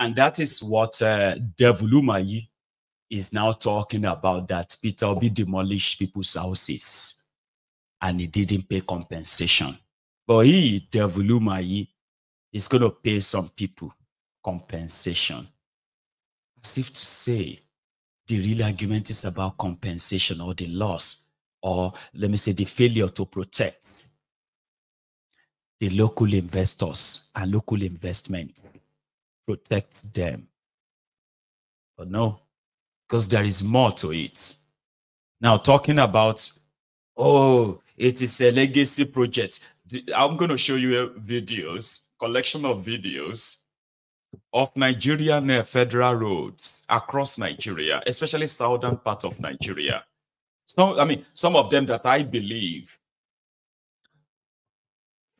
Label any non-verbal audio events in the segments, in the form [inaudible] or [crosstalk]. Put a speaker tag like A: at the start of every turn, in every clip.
A: And that is what uh, Devulumayi is now talking about that Peter Obi demolished people's houses and he didn't pay compensation. But he, Devulumayi, is going to pay some people compensation. As if to say, the real argument is about compensation or the loss, or let me say, the failure to protect the local investors and local investment protect them. But no, because there is more to it. Now, talking about, oh, it is a legacy project. I'm going to show you uh, videos, collection of videos of near uh, federal roads across Nigeria, especially southern part of Nigeria. So, I mean, some of them that I believe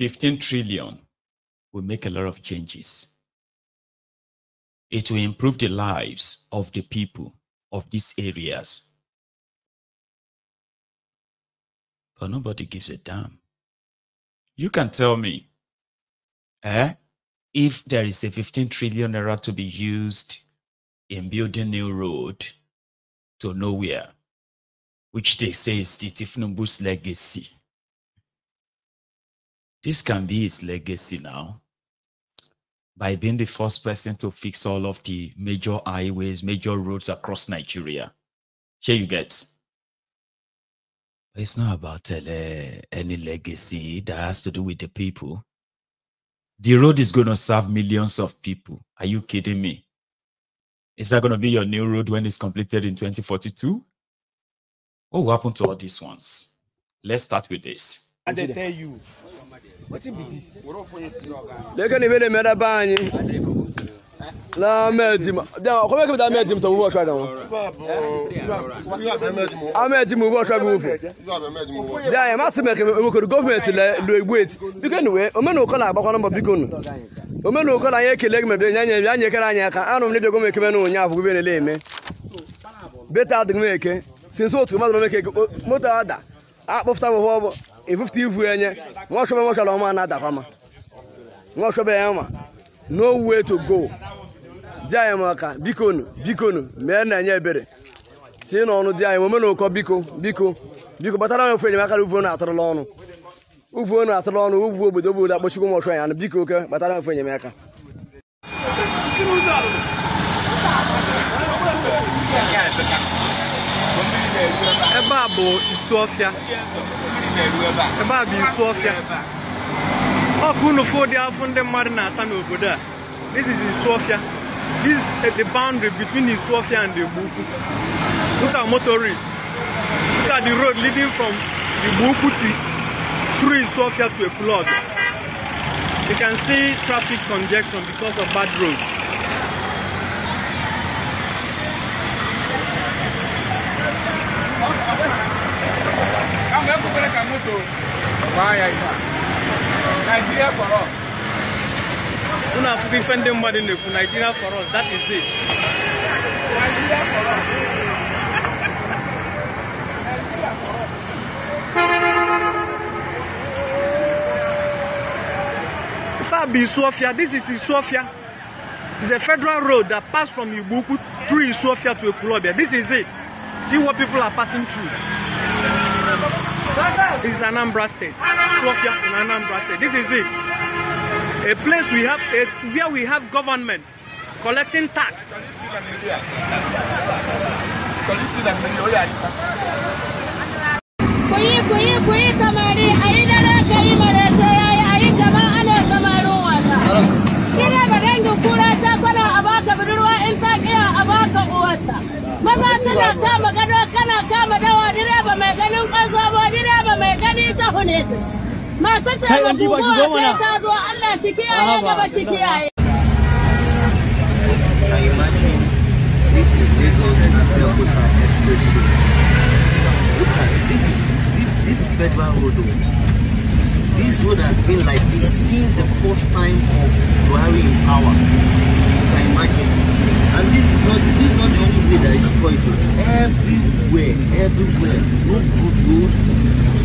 A: 15 trillion will make a lot of changes it will improve the lives of the people of these areas. But nobody gives a damn. You can tell me, eh, if there is a 15 trillion naira to be used in building new road to nowhere, which they say is the Tifnumbu's legacy. This can be his legacy now by being the first person to fix all of the major highways, major roads across Nigeria. Here you get. It's not about uh, any legacy that has to do with the people. The road is going to serve millions of people. Are you kidding me? Is that going to be your new road when it's completed in 2042? What will happen to all these ones? Let's start with this.
B: And they tell you lekeni bele mɛda banyi na mɛtima kɔmɛ kɛmɛ taa mɛtim tɔmu bɔtɔ kan amɛtimu bɔtɔ bi wofo jaa ma sɛmɛ kɛmɛ o kɛri gɔfumɛnti lɛ loibueti bikɛni we o mɛ n'o kɔla a bakɔnɔ bɔ bikɔnu o mɛ n'o kɔla an ye kele kɛmɛ bilen ɲɛ ɲɛ ɲɛ kɛra ɲɛ kan an ne dɔgɔmɛ kɛmɛ n'o ɲɛ fugu bɛ ne le mɛ bɛ taa dugu mɛ kɛ sinsin o tigi ma dɔrɔn mɛ kɛ mɔtɔ y'a da a kpɔfta bɔ fɔ ebupụta ivu enye nwaọchọbe nwaọchọrọ ọma na-adakwa ma nwaọchọbe ya ma no way to go di anyị ma ka bikonu bikonu mee na-enye ebere tinye n'ọnụ di anyị mome na ụkọ biko biko biko kpatara anyị ofe enyemaka na uvuonu atụrụla ọnụ uvuonu atụrụla ọnụ ugwu obodo obodo akpọchikwu nwaọchọ ya anụ biko oke kpatara ofe enyemaka ebe a bụ isi ọfịa ebe a bụ isu ọfịa ọkụ n'ụfọdụ dị afọ ndị mmadụ na-ata n'obodo a this is isu ọfịa this is the boundary between isu ọfịa and igbo ukwu Look at motorists Look at the road leading from igbo ukwu to through isu ọfịa to flood. you can see traffic congestion because of bad road. moto maa yà yìí Nigeria for us. Una afuki fende mbadi leku Nigeria for us that is it. Nigeria for us. Nigeria for us. this is Isofia. It's a federal road that passed from Ibuku through Isofia to Ekurobia. This is it. See what people are passing through. This is Anambra State. Slokia in Anambra State. This is it. A place we have a, where we have government collecting tax ta hone ta ta ta zo Allah shi kiyaye gaba shi kiyaye This is Lagos this is this this is federal road. This road has been like this since the first time of Buhari in power. You can imagine. And this is not this is not the only way that is pointed. Everywhere, everywhere, Road, good road.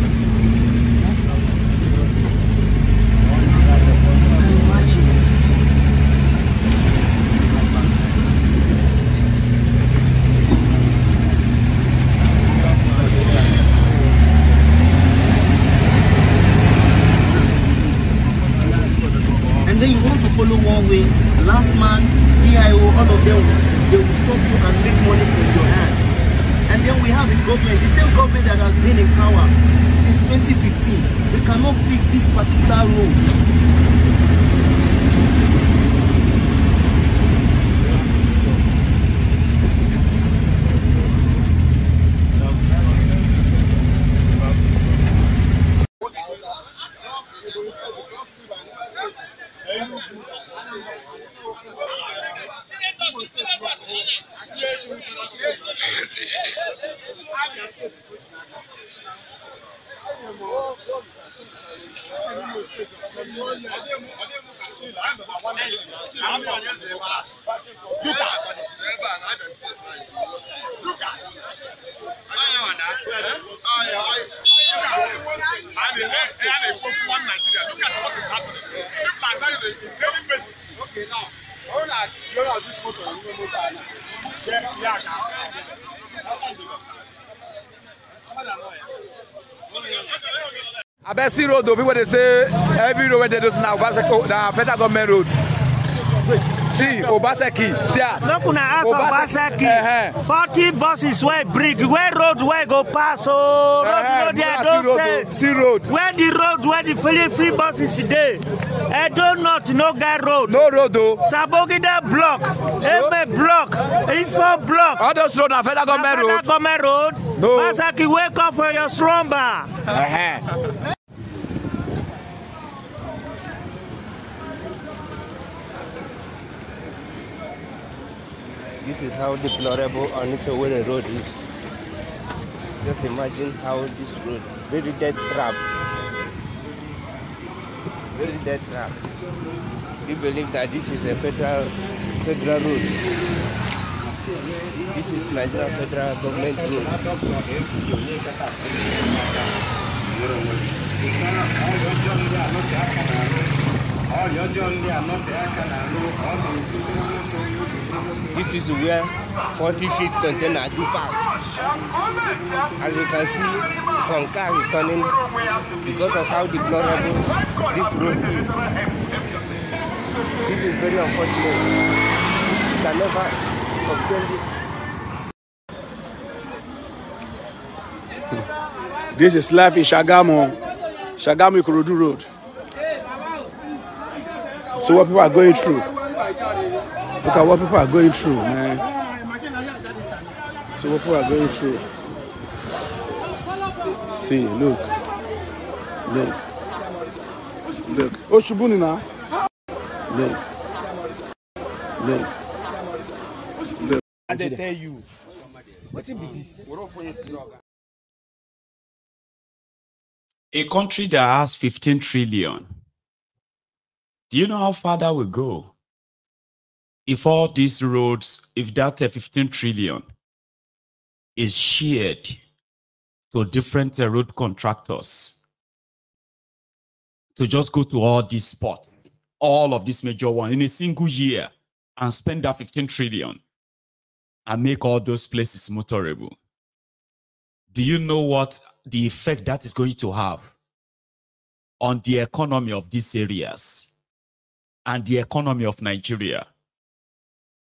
B: road o people dey say every road wey dey do na obaseki oh, na federal government road see obaseki see am. make una ask obaseki eh, eh. forty buses wey bring wey road wey go pass o oh, road uh -huh. no dey don say where the road where the free free buses dey edo eh, north no get road. no road o. Oh. sabogide block eme block ifo block. all those road na federal government road. na federal government road. no basaki wake up for your slumber. This is how deplorable the Road is. Just imagine how this road, very dead trap. Very
A: dead trap. We believe that this is a federal federal
B: road. This is Nigeria federal government road. This is where 40 feet container do pass. As you can see, some cars is turning because of how deplorable this road is. This is very unfortunate. You can never obtain this. This is life in Shagamo, Shagamo Kurudu Road see what people are going through. Look at what people are going through, man. See what people are going through. See, look. Look. Look. Oshibuni now. Look. Look. Look. And they tell you. What is this?
A: A country that has 15 trillion Do you know how far that will go? If all these roads, if that uh, 15 trillion is shared to different uh, road contractors to just go to all these spots, all of these major ones in a single year and spend that 15 trillion and make all those places motorable. Do you know what the effect that is going to have on the economy of these areas? and the economy of Nigeria,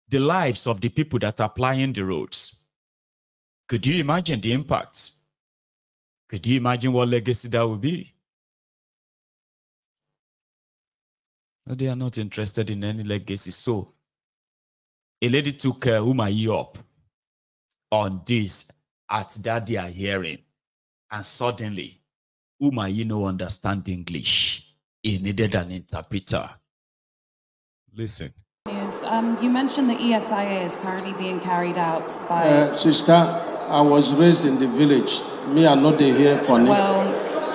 A: the lives of the people that are plying the roads. Could you imagine the impact? Could you imagine what legacy that would be? They are not interested in any legacy. So, a lady took uh, Umayi up on this at that they are hearing. And suddenly, Umayi no understand English. He needed an interpreter. Listen. Um, you mentioned the ESIA is currently being carried out by. Uh, sister, I was raised in the
B: village. Me, I'm not here for Well,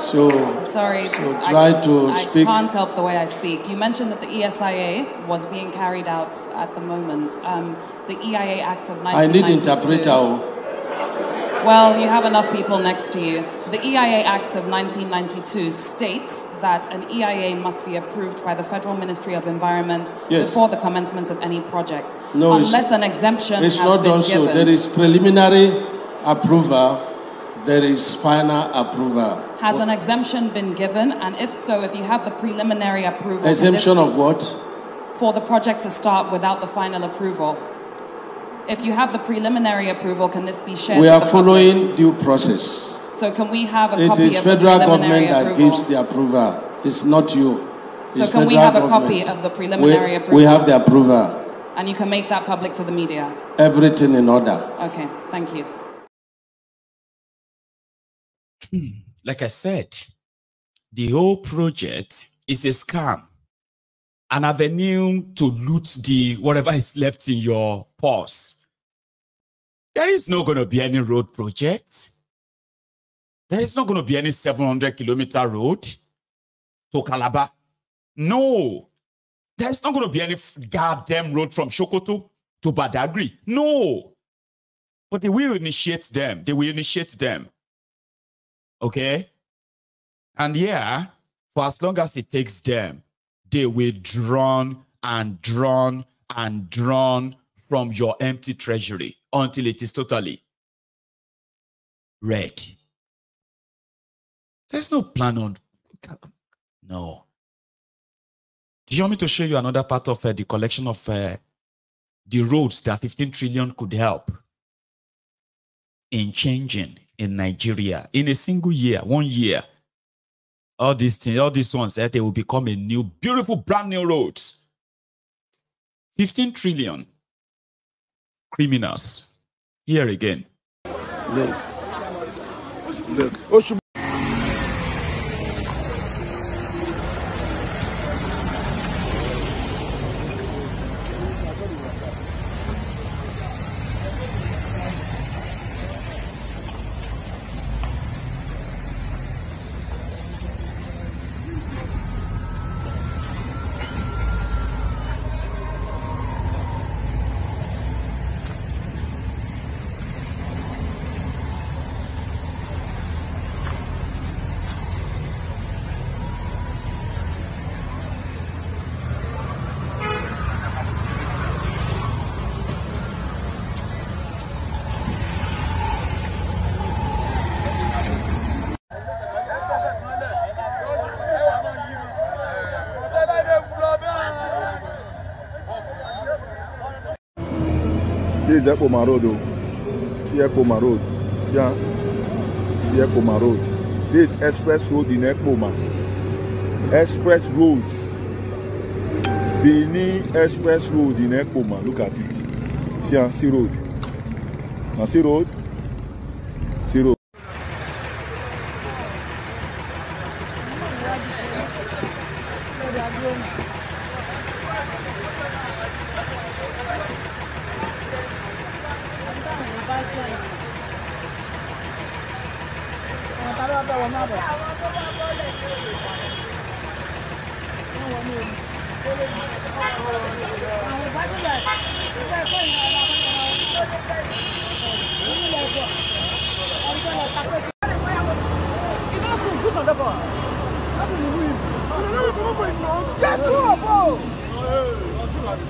B: so sorry. So try I, to I speak. can't
A: help the way I speak. You mentioned that the ESIA was being carried out at the moment. Um, the EIA Act of 1992. I need interpreter. Oh. Well, you have enough people next to you. The EIA Act of 1992 states that an EIA must be approved by the Federal Ministry of Environment yes. before the commencement of any project. No, unless an exemption it's not done So. There is
B: preliminary approval.
A: There is final approval. Has what? an exemption been given? And if so, if you have
C: the preliminary approval. Exemption of what? For the project to start without the final approval if you have the preliminary approval, can this be shared? We are following
B: due
A: process.
C: So can we have a it copy of federal the preliminary government approval? that gives
A: the approval. It's not you.
C: It's so can we have a copy of the preliminary we, approval? We have the
A: approval.
C: And you can make that public to the media?
A: Everything in order.
C: Okay, thank you.
A: Hmm, like I said, the whole project is a scam an avenue to loot the whatever is left in your purse. There is not going to be any road project. There is not going to be any 700 kilometer road to Calabar. No. There's not going to be any goddamn road from Shokoto to Badagri. No. But they will initiate them. They will initiate them. Okay? And yeah, for as long as it takes them, they withdrawn and drawn and drawn from your empty treasury until it is totally ready. There's no plan on. No. Do you want me to show you another part of uh, the collection of uh, the roads that 15 trillion could help in changing in Nigeria in a single year, one year? all these things, all these ones, that eh, they will become a new, beautiful, brand new roads. 15 trillion criminals. Here again.
B: Look. Look.
A: is Ekpoma Road. Oh. See Ekpoma Road. See, ah. see Ekpoma Road. This express road in Ekpoma. Express road. Benin Express Road in Ekpoma. Look at it. See, ah, see road. Now see road.
B: Just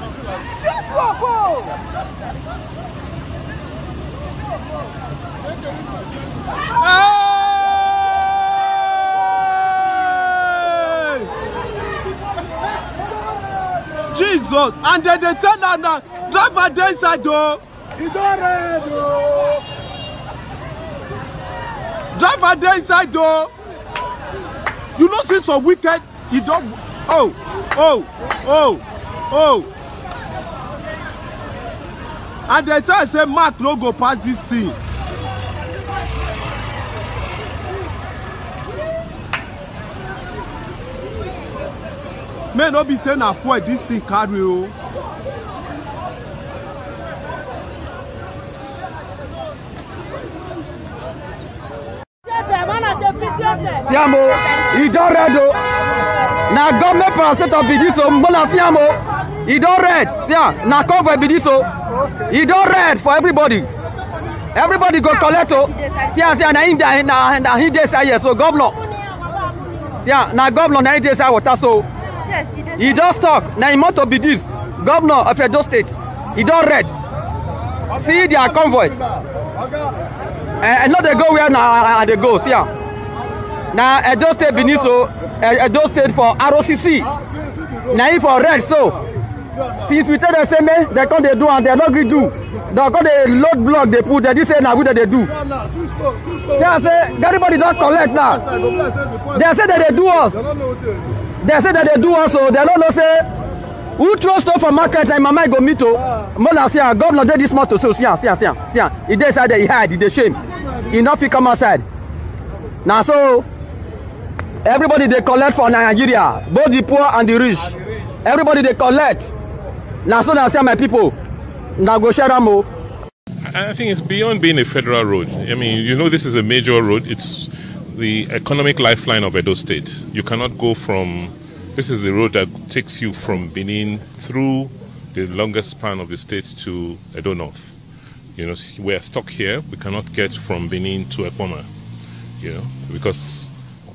B: Jesus, and then they tell her now, drive her inside though. You don't read though. Drive her inside though. You know, since some wicked, he don't. Oh, oh, oh, oh and they tell say mark no go pass dis thing. may no be say na fuel dis thing carry o. siamo e don red o na government paracetamol be dis o mbola siamo e don red sia na convoy be dis He don red for everybody everybody go collect o oh. see am say na him dey na na him dey side here oh, so governor see am na governor na him dey side water so he don stock na him motor be this governor of edo state e don red see their convoy eh, eh no dey go where na i ah, dey ah, go see ah. na edo state benin so oh, eh, edo state for rocc na him for red so since we tell dem say make dem come dey do am dem no gree do dem come dey load block dey put dem think say na we dem dey do dem say everybody don collect now dem say dem dey do us dem say dem dey do us o dem no say who throw for market na im mama go meet o oh. mola see am ah, governor dey this motor so see am ah, see am ah, see am see hide e dey shame e no fit come outside Now so everybody they collect for nigeria both the poor and the rich everybody they collect. Now, so my people. Now go share them. Oh.
C: I think it's beyond being a federal road. I mean, you know, this is a major road. It's the economic lifeline of Edo State. You cannot go from this is the road that takes you from Benin through the longest span of the state to Edo North. You know, we are stuck here. We cannot get from Benin to Ekoma, you know, because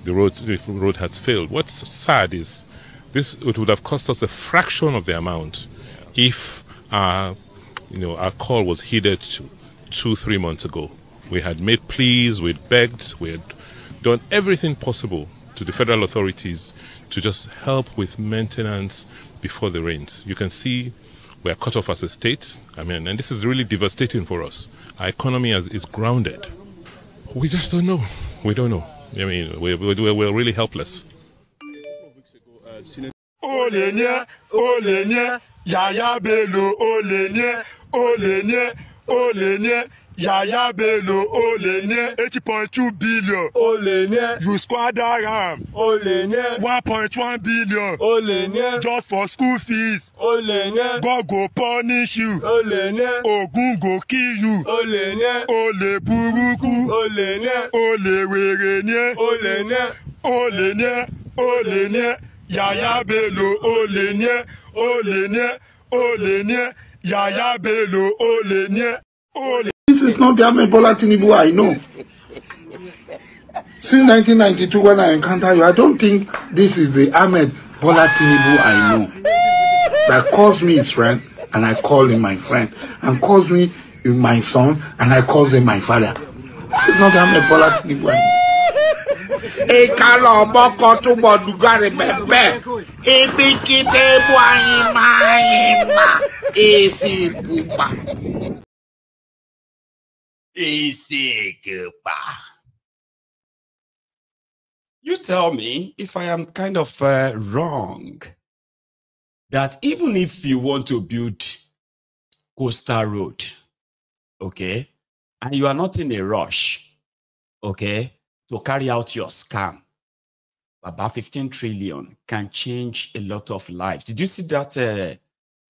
C: the road the road has failed. What's sad is this it would have cost us a fraction of the amount if our, you know, our call was heeded to two, three months ago. We had made pleas, we had begged, we had done everything possible to the federal authorities to just help with maintenance before the rains. You can see we are cut off as a state. I mean, and this is really devastating for us. Our economy is, is grounded. We just don't know. We don't know. I mean, we we're, we're really helpless.
B: Yaya Bello olè ní ẹ olè ní ẹ olè ní ẹ Yaya Bello olè ní ẹ eighty point two billion olè ní ẹ you squander am olè ní ẹ one point one billion olè ní ẹ just for school fees olè ní ẹ God go punish you olè ní ẹ Ògún go kill you olè ní ẹ olè burúkú olè ní ẹ olè wèrè ní ẹ olè ní ẹ olè ní ẹ olè ní ẹ Yaya Bello olè ní ẹ olè ní ẹ olè ní ẹ Yahaya Bello olè ní ẹ olè.
A: This is not the Ahmed Bola Tinubu I know. Since 1992 when I encounter you, I don't think this is the Ahmed Bola Tinubu I know. That calls me his friend and I call him my friend. And calls me my son and I call him my father. This is not the Ahmed Bola Tinubu I know ịkala ọgbọkọ tụgbọ dugari bebe
B: ibikite bụ anyị ma anyị ma esi bụgba
A: You tell me if I am kind of uh, wrong that even if you want to build Coastal Road, okay, and you are not in a rush, okay, to carry out your scam. About 15 trillion can change a lot of lives. Did you see that uh,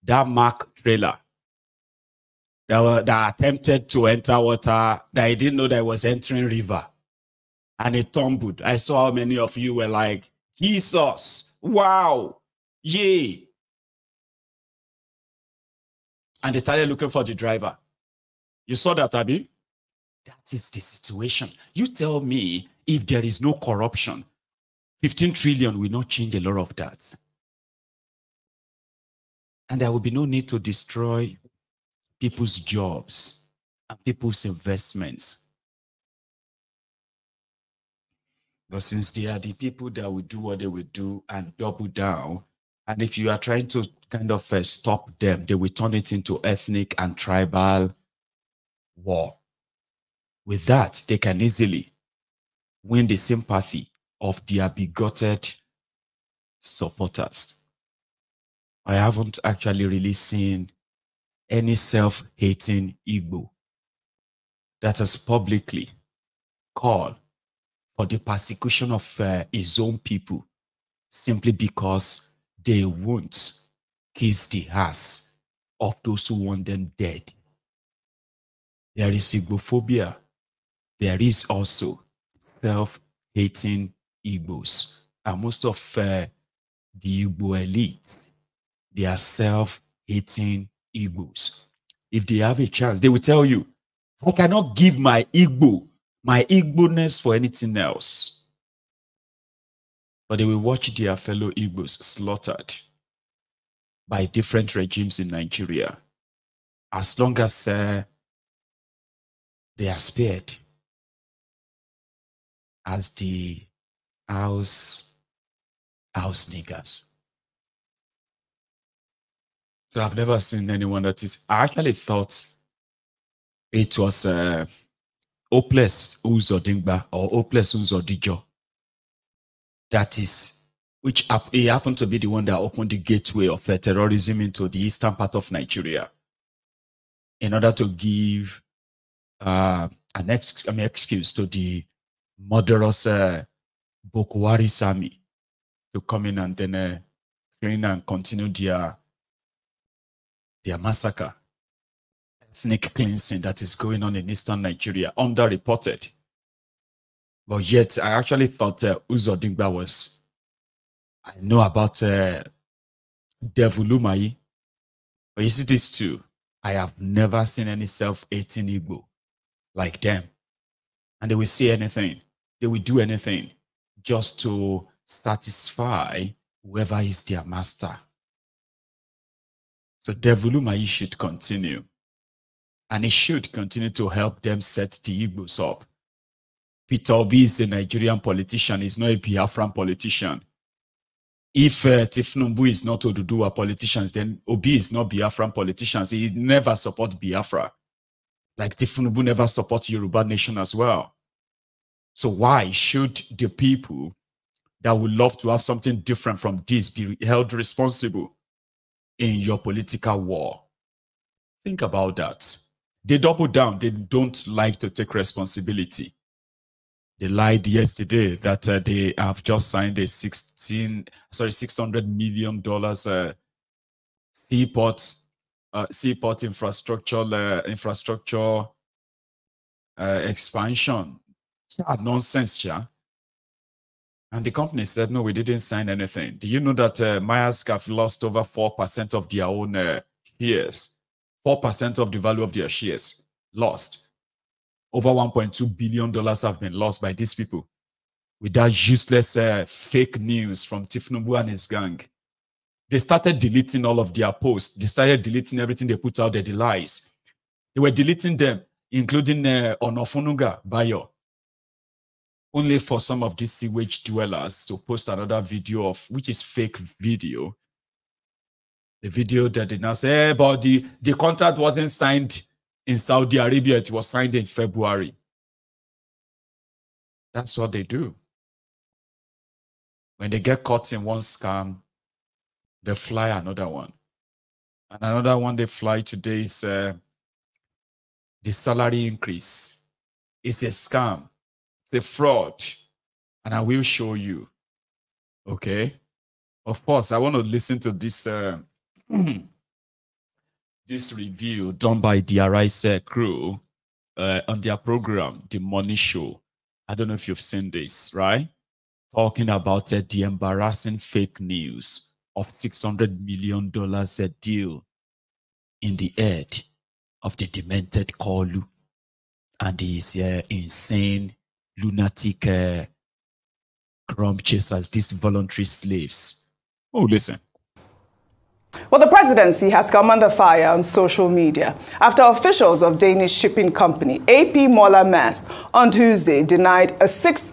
A: that Mark trailer that, were, that attempted to enter water that I didn't know that was entering river and it tumbled? I saw how many of you were like, Jesus, wow, yay. And they started looking for the driver. You saw that, Abby? is the situation. You tell me if there is no corruption, 15 trillion will not change a lot of that. And there will be no need to destroy people's jobs and people's investments. But since they are the people that will do what they will do and double down, and if you are trying to kind of uh, stop them, they will turn it into ethnic and tribal war. With that, they can easily win the sympathy of their bigoted supporters. I haven't actually really seen any self-hating Igbo that has publicly called for the persecution of uh, his own people simply because they won't kiss the ass of those who want them dead. There is Igbophobia there is also self-hating Igbos. And most of uh, the Igbo elite, they are self-hating Igbos. If they have a chance, they will tell you, I cannot give my Igbo, my Igbo-ness for anything else. But they will watch their fellow Igbos slaughtered by different regimes in Nigeria. As long as uh, they are spared, the house house Ausniggers. So I've never seen anyone that is. I actually thought it was uh, Oples Uzodingba or Oples Uzodijo. That is, which he happened to be the one that opened the gateway of uh, terrorism into the eastern part of Nigeria in order to give uh, an ex- I mean, excuse to the murderous uh, Sami to come in and then uh, train and continue their, their massacre, ethnic cleansing that is going on in eastern Nigeria, underreported. But yet, I actually thought uh, was, I know about uh, Devulumai, but you see these two, I have never seen any self-hating Igbo like them. And they will say anything they will do anything just to satisfy whoever is their master. So Devolumai should continue. And it should continue to help them set the Igbos up. Peter Obi is a Nigerian politician. He's not a Biafran politician. If uh, Tifnumbu is not Oduduwa politicians, then Obi is not Biafran politicians. He never support Biafra. Like Tifnumbu never support Yoruba nation as well. So why should the people that would love to have something different from this be held responsible in your political war? Think about that. They double down. They don't like to take responsibility. They lied yesterday that uh, they have just signed a 16, sorry, 600 million dollars uh, seaport uh, seaport infrastructure uh, infrastructure uh, expansion nonsense, yeah. And the company said, no, we didn't sign anything. Do you know that uh, Maersk have lost over 4% of their own uh, shares? 4% of the value of their shares lost. Over $1.2 billion have been lost by these people with that useless uh, fake news from Tifnubu and his gang. They started deleting all of their posts. They started deleting everything they put out there, the lies. They were deleting them, including uh, Onofunuga Bayo only for some of these sewage dwellers to post another video of which is fake video. The video that they now say, hey, eh, but the, the contract wasn't signed in Saudi Arabia, it was signed in February. That's what they do. When they get caught in one scam, they fly another one. And another one they fly today is uh, the salary increase. It's a scam it's a fraud, and I will show you. Okay. Of course, I want to listen to this uh, [clears throat] this review done by the Arise crew uh, on their program, The Money Show. I don't know if you've seen this, right? Talking about uh, the embarrassing fake news of $600 million a uh, deal in the head of the demented Kolu and his uh, insane lunatic uh, crumb chasers, these voluntary slaves. Oh, listen.
C: Well, the presidency has come under fire on social media after officials of Danish shipping company AP Moller Maersk on Tuesday denied a $600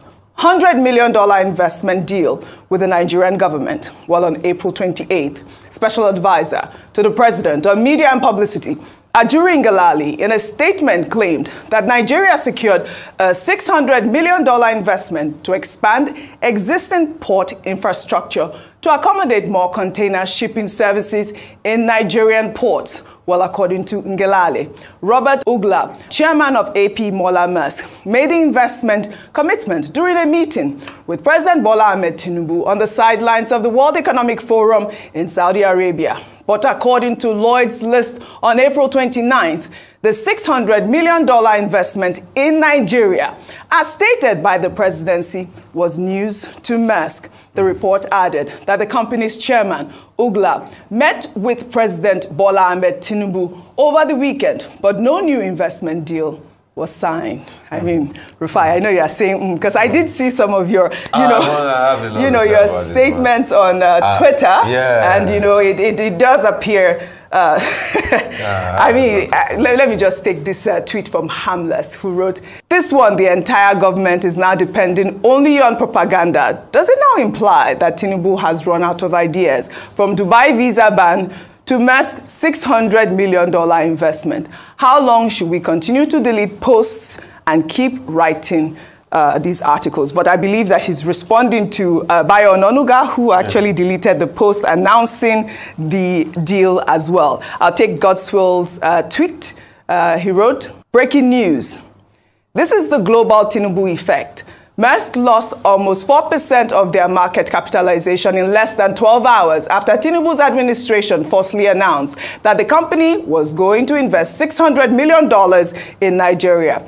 C: million investment deal with the Nigerian government. While on April 28th, special advisor to the president on media and publicity Ajuri Ngalali, in a statement, claimed that Nigeria secured a $600 million investment to expand existing port infrastructure to accommodate more container shipping services in Nigerian ports. Well, according to Ngelale, Robert Ugla, chairman of AP Mola Musk, made the investment commitment during a meeting with President Bola Ahmed Tinubu on the sidelines of the World Economic Forum in Saudi Arabia. But according to Lloyd's list on April 29th, the $600 million investment in Nigeria, as stated by the presidency, was news to Maersk. The report added that the company's chairman, Ugla, met with President Bola Ahmed Tinubu over the weekend, but no new investment deal was signed. I mean, Rufai, I know you are saying because mm, I did see some of your, you ah, know, you know, your statements on uh, uh, Twitter, yeah. and you know, it, it, it does appear. Uh, [laughs] ah, I mean, let, let, me just take this uh, tweet from Hamless, who wrote, "This one, the entire government is now depending only on propaganda. Does it now imply that Tinubu has run out of ideas, from Dubai visa ban?" to Maersk's $600 million investment. How long should we continue to delete posts and keep writing uh, these articles? But I believe that he's responding to uh, Bayo Nonuga, who actually yeah. deleted the post announcing the deal as well. I'll take Godswill's uh, tweet. Uh, he wrote, Breaking news. This is the global Tinubu effect. Maersk lost almost 4% of their market capitalization in less than 12 hours after Tinubu's administration falsely announced that the company was going to invest $600 million in Nigeria.